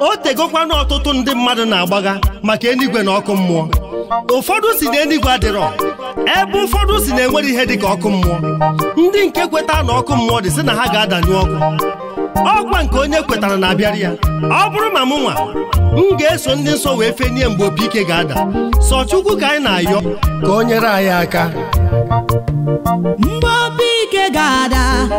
o tegokwa na ọtụtụ ndị mmadụ na agbaga maka enigwe na ọkụ mmụọ ụfọdụ si na enigwe adịrọ ebe ụfọdụ si na enwere ihe dị ka ọkụ mmụọ ndị nke kweta na ọkụ mmụọ dị sị na ha ga-adanyụ ọkụ ọkwa nke onye kwetara na-abịara ya ọ bụrụ ma nwa m ga-eso ndị nsọ wee fenie mgbe opi ike ga-ada sọ Chukwu ka anyị na-ayọ ka o nyere anyị aka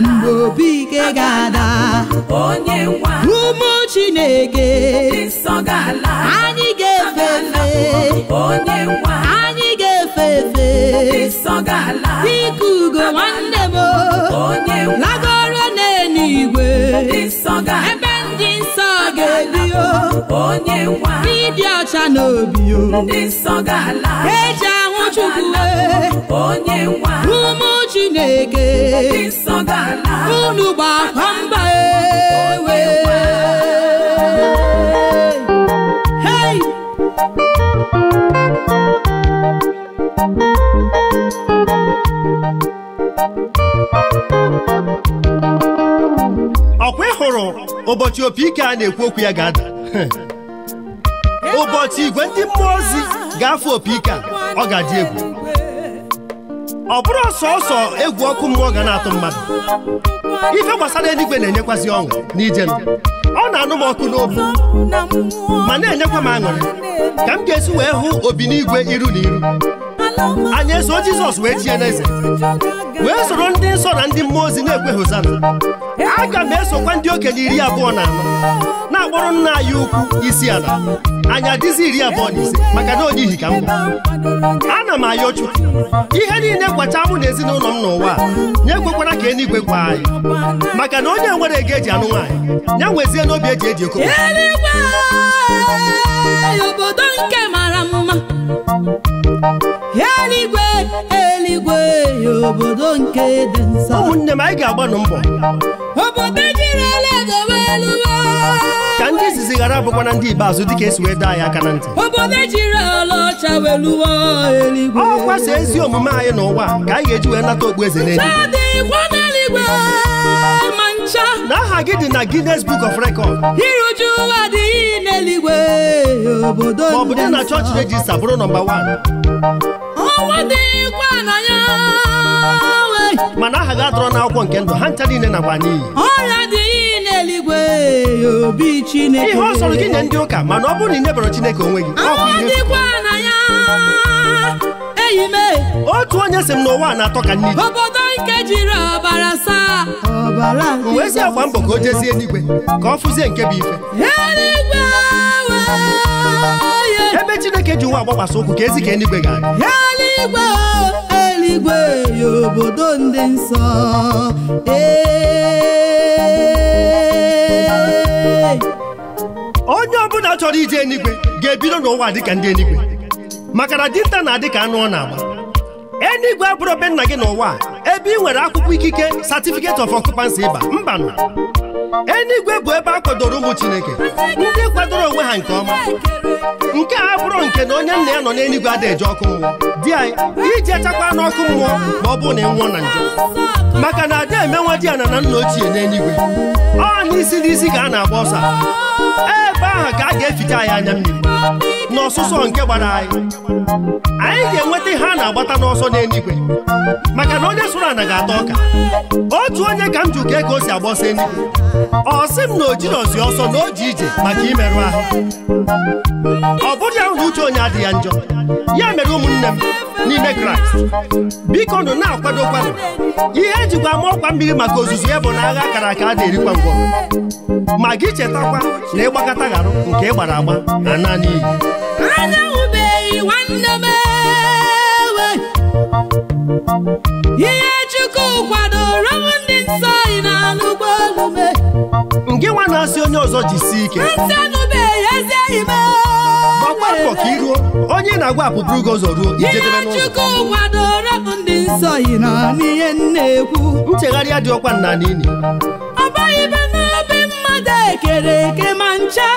mgbe obi ike ga-ada ụmụ Chineke anyị ga-efe efe anyị ga-efe efe dịka ugo nwanne m lagoro n'eluigwe ebe ndị nsọ ga-ebi n'ịdị ọcha n'obi eji ahụ Chukwu ụmụ e. chineke unu gbakwa mba ewe hey! ọkwa ị hụrụ ụbọchị opi ike a na-ekwu okwu ya ga-ada ụbọchị igwe ndị mmụọ ozi ga-afụ opi ike a ọ ga-adị egwu ọ bụrụ sọsọ egwu ọkụ mmụọ ga na-atụ mmadụ ife gbasara eluigwe na enyekwasị ọṅụ n'ije m ọ na-anụ m ọkụ n'obi ma na-enyekwa m aṅụrị ka m ga-esi wee hụ obi n'igwe iru na iru anyị eso Jizọs wee chie n'eze wee soro ndị nsọ na ndị mmụọ ozi na-ekwe hosana aga m esokwa ndị okenye iri abụọ na anọ na-akpọrọ nna anyị ukwu isi ala anyị adịzi iri abụọ na ise maka na onye ihi ka m ana m ayọ chụ ihe niile gbacha mụ na ezinụlọ m n'ụwa nye ekwekwara ka eluigwe gwa anyị maka na onye nwere ego eji anụ nwaanyị ya nwezie n'obi eji eji eko obodo nke mara mma mgbei obodo nke dị nsọ ụmụnne m anyị ga-agbanụ mbọ obodo ka ndị izizi ghara abụkwa na ndị ikpeazụ dịka esi wee daa ya aka na ntị obodo ọcha weluwa eluigwe ọ ezi omume anyị n'ụwa ka anyị ga-eji wee nata okpu eze n'eluigwe na aha gị dị na Guinness Book of Record iruju ọ bụ dị na chọọchị rejista bụrụ nọmba 1 ụwa dịkwa na ya mana aha gị atụrụ n'akwụkwọ nke ndụ ha ncha niile nakwa n'iyi ọrịa dị iyi n'eluigwe obi Chineke ihe ọ sọrọ gị nye ndị ụka mana ọ bụrụ na ị nyebara Chineke onwe gị dịkwa na ya enyi m otu onye si m n'ụwa na-atọ ka nne obodo nke jiri ọbara saa ọbara wee si agba mbọ ka o jezie eluigwe ka ọ fụzie nke bụ ife eluigwe ebe chineke ji nwa agbagbasa ụkwụ ka ezi ka eluigwe ga eluigwe eluigwe ya obodo ndị nsọ onye ọbụla chọrọ ije eluigwe ga-ebido n'ụwa dịka ndị eluigwe maka na dinta na-adị ka anụ ọ na-agba eluigwe abụrụ be nna gị n'ụwa ebe ị nwere akwụkwọ ikike Satifiketi of occupancy ịba mba na eluigwe bụ ebe a kwadoro ụmụ chineke ndị kwadoro onwe ha nke ọma nke a bụrụ nke na onye nna ya nọ n'eluigwe ada eje ọkụ mmụọ di anyị iji achakwa n'ọkụ mmụọ ma ọ bụrụ na ị nwụọ na njọ maka na ada emenwa di ya na nna ochie n'eluigwe ọ na isi n'isi ka a na-agba ọsọ ebe ahụ ka a ga-efite anyị anya mmiri n'ọsụsọ nke gbara anyị anyị ga-enweta ihe a na-agbata n'ọsọ n'eluigwe maka na onye sụrụ ana ga-ata ọka otu onye ka m jụ ka o si agbọsị ndụ ọ sị m na o ọsọ na o ji ije maka imerụ ahụ ọ bụrụ ya na uche onye adịghị njọ ya mere ụmụnne m n'ime kraịst biko nụ na-akwadokwanụ ihe ejikwa ama ọkwa mmiri maka ozuzu ya bụ na agha kara aka a na-erikwa ngwọ ma gị chetakwa na ịgbakọta gharụ nke gbara agba na naanị iyi ihe chukwu na-asị onye ọzọ jisie ike gbakwa ka iruo onye na-agwa apụpụ ugo ụzọ ruo ijedebe n'ụlọ nchegharị dị ọkwa nna n'ili ekere eke ma ncha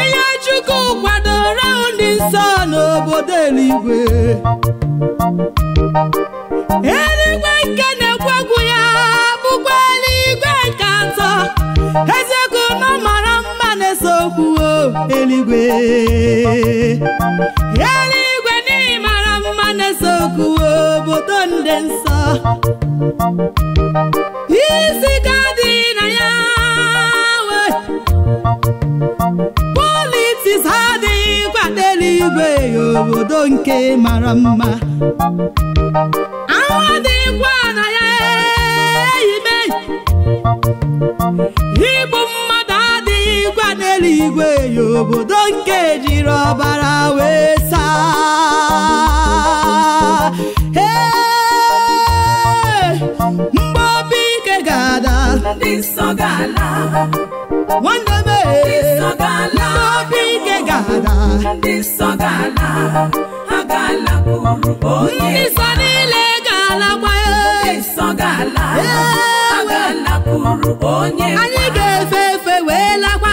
ihe Chukwu kwadoro ndị nsọ n'obodo eluigwe eluigwe nke Ezeku na mara mma na-ese okwu eluigwe eluigwe n'ihi mara mma na-ese okwu obodo ndị nsọ isi ka dị na ya politis adịghị kwado eluigwe obodo nke mara mma ahụ adịghịkwa na ya Igbo mmadụ adịghị gwa n'eluigwe ya obodo nke jiri ọbara wee saa mgbe obi ike ga-ada nwanne m mgbe obi ike ga-ada ndị nsọ niile ga-alakwa ya anyị ga-efe efe wee lakwa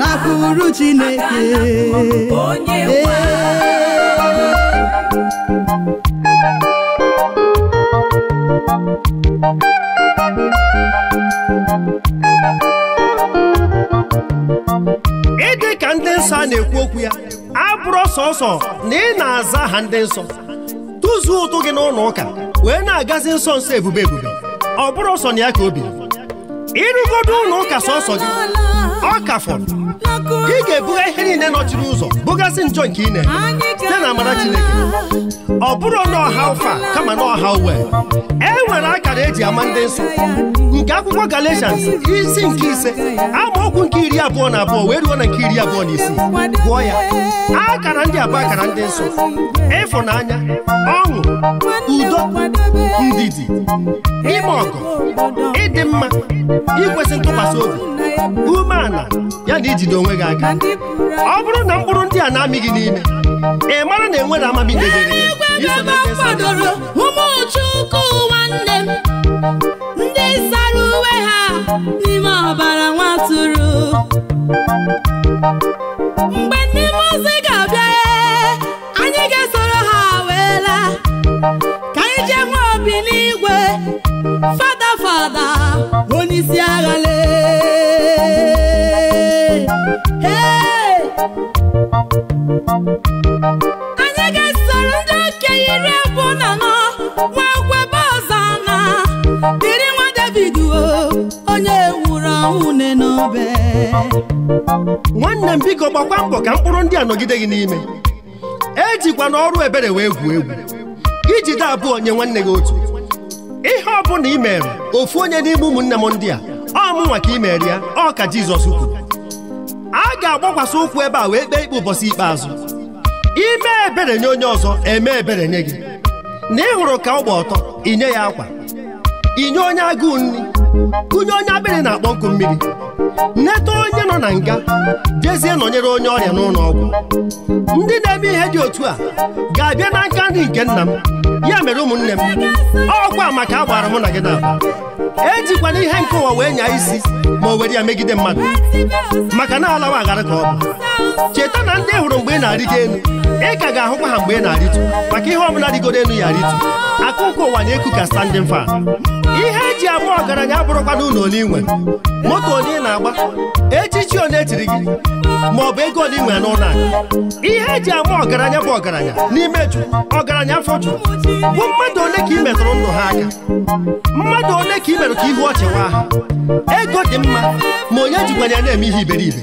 lakwuru Chineke ịdị ka ndị nsọ a na-ekwu okwu ya abụrụ sọsọ na ị na-aza aha ndị nsọ tụzuo ụtụ gị n'ụlọ ụka wee na-agazi nsọ nsọ ebube ebube ọ bụrụ ọsọ na ya ka o biri ịrụgodo ụlọ ụka sọsọ gị ọ ka fọrọ ị ga-ebuga ihe niile nọchiri ụzọ bugasị njọ nke na-eme, site na amara Chineke ọ bụrụ ọha ụfa kama na ọha uwe e nwere akara eji ama ndị nsọ nke akwụkwọ Galatians isi nke ise ọkwụ nke iri abụọ na abụọ wee ruo na nke iri abụọ na isii gụọ ya akara ndị abụọ akara ndị nsọ ịfụnanya ọṅụ udo ndidi ime ọgụ ịdị mma ikwesị ntụkwasị obi umeala ya na ijide onwe gị aka ọ bụrụ na mkpụrụ ndị a na-amị n'ime ị mara na enwere amami kwadoro ụmụchukwu nwanne m ndị sara uwe ha n'ime ọbara nwatụrụ mgbe ndị mụzi ga-abịa anyị ga-esoro ha wee laa ka anyị jee nwee obi n'igwe fada fada onye isi agha anyị ga-esoro ndị okenye iri abụọ na anọ nwee kwebe na dịrị nwa David onye nwụrụ anwụ ne n'obe nwanne m biko gbakwa mbọ ka mkpụrụ ndị a nọgide gị n'ime ejikwa n'ọrụ ebere wee gwuo egwu iji de abụọ nye nwanne gị otu ihe ọ bụla i mere ofu onye n'ime ụmụnne m ndị a ọ mụnwa ka i mere ya ọ ka Jizọs kwuru a ga-agbakwasị ụkwụ ebe a wee kpee ikpe ụbọchị ikpeazụ ime ebere nye onye ọzọ eme ebere nye gị na ị hụrụ ka ọ gba ọtọ inye ya akwa inye onye agụụ nri kụnye onye akpịrị na-akpọ nkụ mmiri nleta onye nọ na nga jezie nọnyere onye ọrịa n'ụlọ ọgwụ ndị na-eme ihe dị otu a ga-abịa na nka nri nke nna m ya mere ụmụnne m ọkwa maka a gbara mụ na gị n'aba ejikwana ihe nke ụwa wee nyaa isi ma o were ya megide mmadụ maka na alawa agharị ka ọ bụ cheta na ndị hụrụ mgbe ị na-arịgo elu ị ka ga-ahụkwa ha mgbe ị na-arịtu maka ihe ọbụla rigoro elu ya arịtu akụkụ ụwa na-eku ka standing fan ihe eji agba ọgaranya abụrụkwana ụlọ ole inwe moto onye ị na-agba echichi onye etiri gị ma ọ bụ ego ole nwere n'ụlọ akụ ihe eji ama ọgaranya bụ ọgaranya n'ime jụụ, ọgaranya afọ jụ bụ mmadụ ole ka ị metụrụ ndụ ha aka mmadụ ole ka ị mere ka ihu ọchịwa ha ego dị mma ma onye jikwanye na-eme ihe iberibe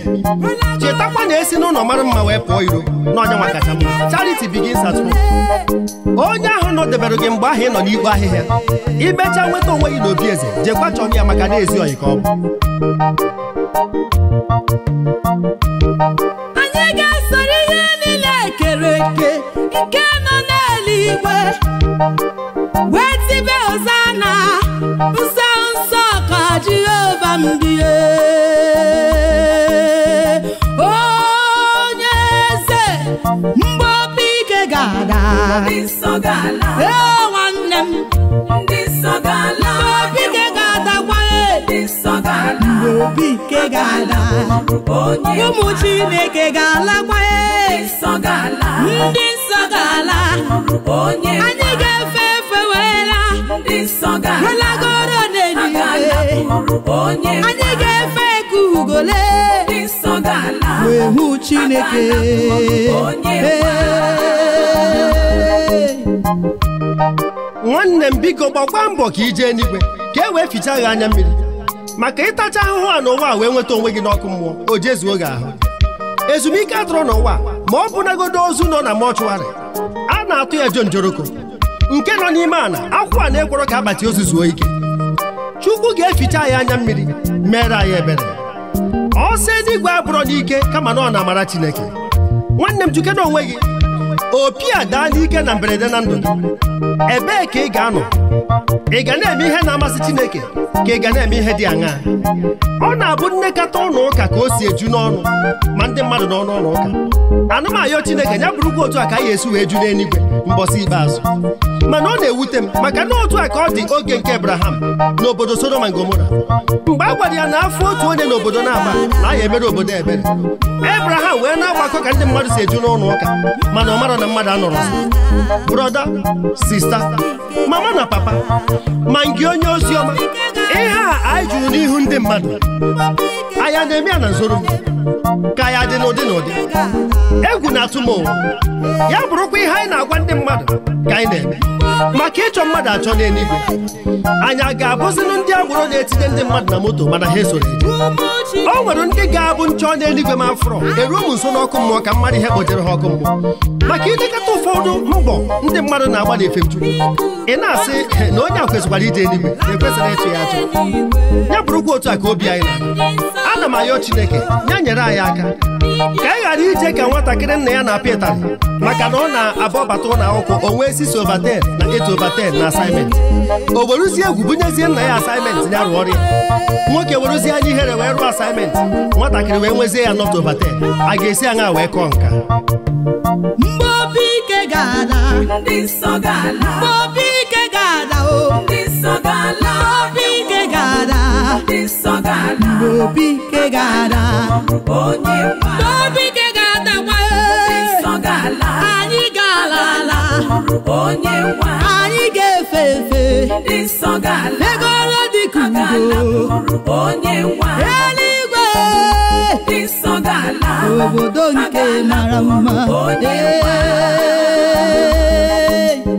chetakwa na esi n'ụlọ mara mma wee pụọ iro na onye mma at onye ahụ nọdebere gị mgbe ahụ ị nọ n'igwe ahịhịa imecha nweta onwe gị n'obi eze jekwa chọọ ya maka na-ezi ọyị ka ọ bụ anyị ga-esoro ihe niile ekere eke nke nọ n'eluigwe wee tibe ozana nsọ nsọ ka Jehova mbie onye eze mgbe ike ga-ada ee nwanne m obi nke ga-ala ụmụ Chineke ga-alakwa ndị nsọ ga-ala anyị ga-efe efe weela alagoro n'eluigwe anyị ga-efe eke ugole wee hụ Chineke nwanne m biko gbakwa mbọ ka ije eluigwe ka e wee ficha anya mmiri maka ịtacha ahụhụ a n'ụwa a wee nweta onwe gị n'ọkụ mmụọ o jezuo gị ahụ ezumike atụrụ n'ụwa ma ọ nagodo ozu nọ na mọchụarị a na-atụ ya njoroko. nke nọ n'ime ala akwụ a na-ekworo ka akpati ozu zuo ike chukwu ga-eficha ya anya mmiri mere anyị ebere ọ sị n'igwe abụrọ n'ike kama na ọ na-amara chineke nwanne m jikena onwe gị opi a daa n'ike na mberede na ndụ ebee ka ị ga-anọ ị ga na-eme ihe na-amasị Chineke ka ị ga na-eme ihe dị aṅaa ọ na-abụ nnekọta ụlọ ụka ka o si eju n'ọnụ ma ndị mmadụ n'ọnụ ụlọ ụka anamayo Chineke ya bụrụkwa otu a ka anyị esi wee ju n'eluigwe mbọsị ikpeazụ mana ọ na-ewute m maka na otu a ka ọ dị oge nke Abraham n'obodo Sodoma Gomora mgbe a gwara ya na afọ otu onye n'obodo na-agba na ya emere obodo ebere Abraham wee na-agbakọ ka ndị mmadụ si eju n'ụlọ ụka mana ọ mara na mmadụ anọrọ brọda sista mama na papa ma nke onye ozi ọma ihe a anyị jụrụ n'ihu ndị mmadụ anya na-eme ya na nzoro ka ya dị n'ụdị n'ụdị egwu na-atụ ya bụrụkwa ihe anyị na-agwa ndị mmadụ ka anyị na-eme maka ịchọ mmadụ achọ n'eluigwe anyị a ga-abụzinụ ndị agboro na-etinye ndị mmadụ na moto mana ha esoro o nwere ndị ga-abụ nchọ n'eluigwe ma afọrọ eruo m nso n'ọkụ mmụọ ka mmadụ ihe kpotere ha ọkụ mmụọ maka ilekọta ụfọdụ mbọ ndị mmadụ na-agba na efemchukwu ị na-asị na onye a kwesịkwara ije eluigwe na-ekwesịrị ịtụ ya ajụ ya bụrụkwa otu a ka obi anyị na ana m ayọ Chineke ya nyere anyị aka ka anyị ghara ije ka nwatakịrị nna ya na-apịa ịtarị maka na ọ na-abọbata ụlọ akwụkwọ o wee si so na eto overten na asaịment o weruzie egwu bunyezie nna ya asaịment ya rụọ ọrịa. Nwoke nwoke uzi anyị ihere wee rụọ asaịment nwatakịrị wee nwezie ya not overten a ga-esi aṅa wee kọọ nka mgbe obi ike ga-ala ndị nsọ ga-ala o. This song I love you. Bobike gada. This wa. Bobike gada wa. This song I love. Anyị galala. Onye wa. Anyị ga-efe efe. This song I Eluigwe. Obodo nke mara mma. Onye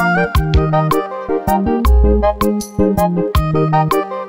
Thank you.